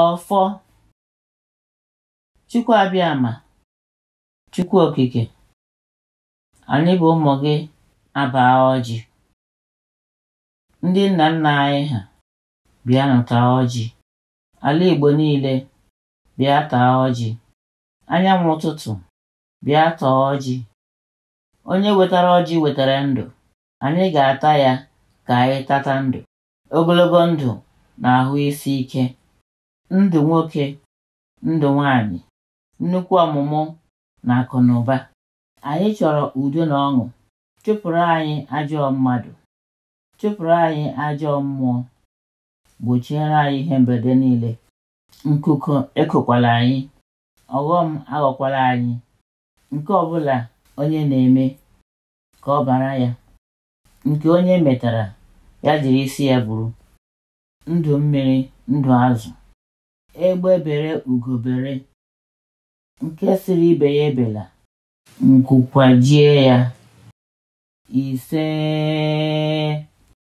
Ọfọ Abịama! Chukwu okike anyị bụ ụmụ gị abaa ọjị ndị nna nna anyị ha bịa taa ọjị ala Igbo niile bịa taa ọjị anyanwụ ụtụtụ bịa taa ọjị onye wetara ọjị wetara ndụ anyị ga-ata ya ka anyị tata ndụ ogologo ndụ na ahụ isi ike ndụ nwoke ndụ nwanyị nnukwu ọmụmụ na akụ na ụba anyị chọrọ udo na ọṅụ chụpụrụ anyị ajọ mmadụ chụpụrụ anyị ajọ mmụọ gbochiere anyị ihe mberede niile nkụkụ ekokwala anyị ọghọm aghọkwala anyị nke ọbụla onye na-eme ka ọ bara ya nke onye metara ya jiri isi ya bụrụ ndụ mmiri ndụ azụ egbe bere ugo nke siri ibe ya ebela nkwụkwajie ya ise